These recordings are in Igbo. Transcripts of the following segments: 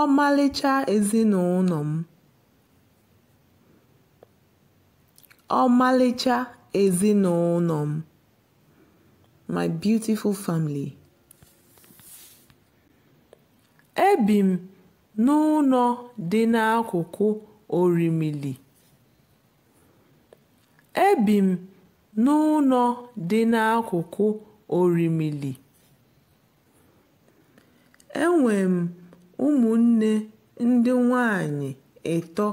ọmalịcha ezinụlọ m. ọmalịcha ezinụlọ m. my beautiful family. ebi m n'ụlọ dị n'akụkụ orimili. ebi m n'ụlọ dị n'akụkụ orimili. enwe m Ụmụnne ndị nwaanyị ịtọ,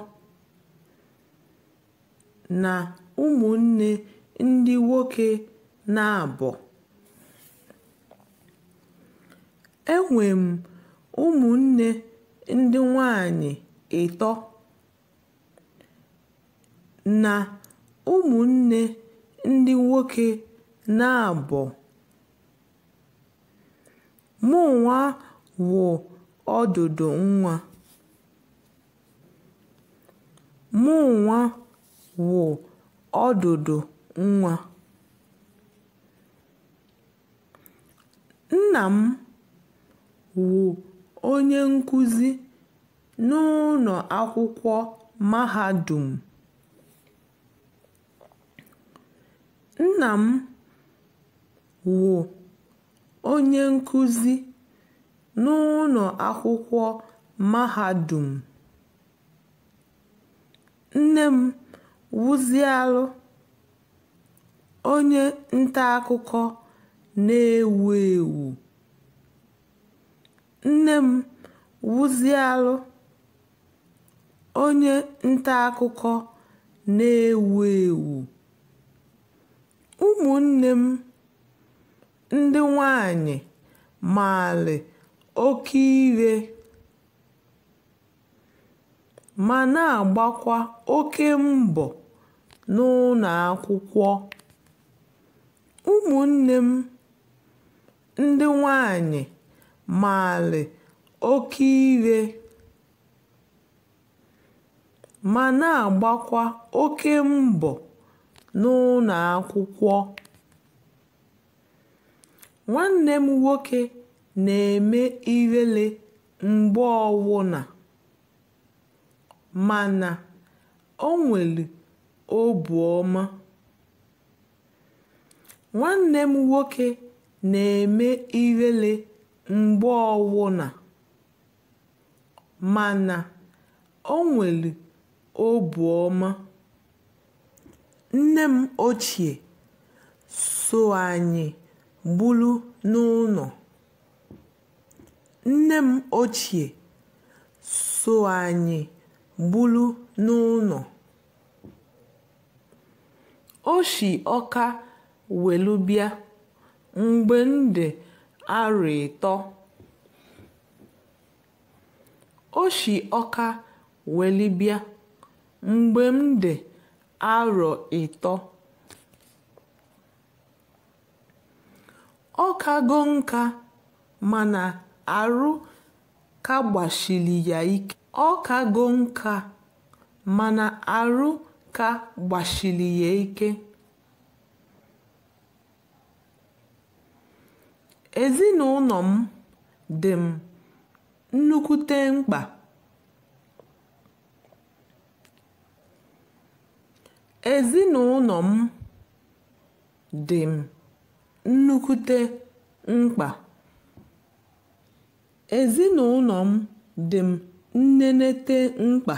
na ụmụnne ndị nwoke na naabọ Enwe m ụmụnne ndị nwaanyị ịtọ, na ụmụnne ndị nwoke naabọ Mụnwa wụ ọdụdụ nwa. Mụnwa wụ ọdụdụ nwa. Nna m wụ onye nkuzi n'ụlọ akwụkwọ mahadum. Nna m wụ onye nkuzi. N'ụlọ akwụkwọ mahadum nne m wuziela onye nta akụkọ na-ewu ewu. nne m wuziela onye nta akụkọ na-ewu ewu. ụmụnne m ndị nwanyị maalị. oke ire ma na-agbakwa oke mbọ n'ụlọ akwụkwọ. ụmụnne m ndị nwanyị maalị oke ire ma na-agbakwa oke mbọ n'ụlọ akwụkwọ. nwanne m nwoke na-eme ihere mgbe ọbụla, ma Nwanne m nwoke na-eme ihere mgbe ọbụla, mana Nne m ochie so anyị gburu n'ụlọ nne m ochie so anyị buru n'ụlọ o si ọka welu bịa mgbe m dị arọ ịtọ o si ọka weli bịa mgbe m dị arọ ịtọ ọ kago nka mana arụ gbachiri ya ike. Ọ kago nka, mana arụ ka gbachiri ya ike. Ezinụlọ m dị m nnukwute mkpa. Ezinụlọ m dị m nnukwute mkpa. ezinụlọ m dị m nnenete mkpa.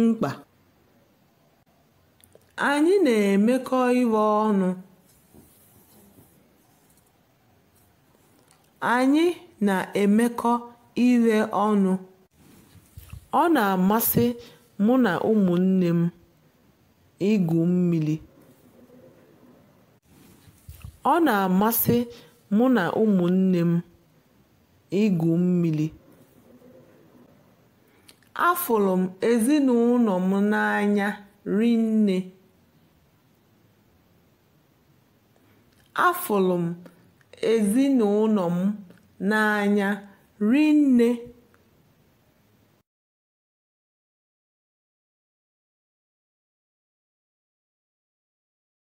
mkpa. anyị na-emekọ ihe ọnụ. ọnụ. ọ na-amasị mụ na ụmụnne m. igwu mmiri. Ọ na-amasị mụ na ụmụnne m igwu mmiri. Afụrụ m ezinụlọ m n'anya rinne. Afụrụ m ezinụlọ m n'anya rinne.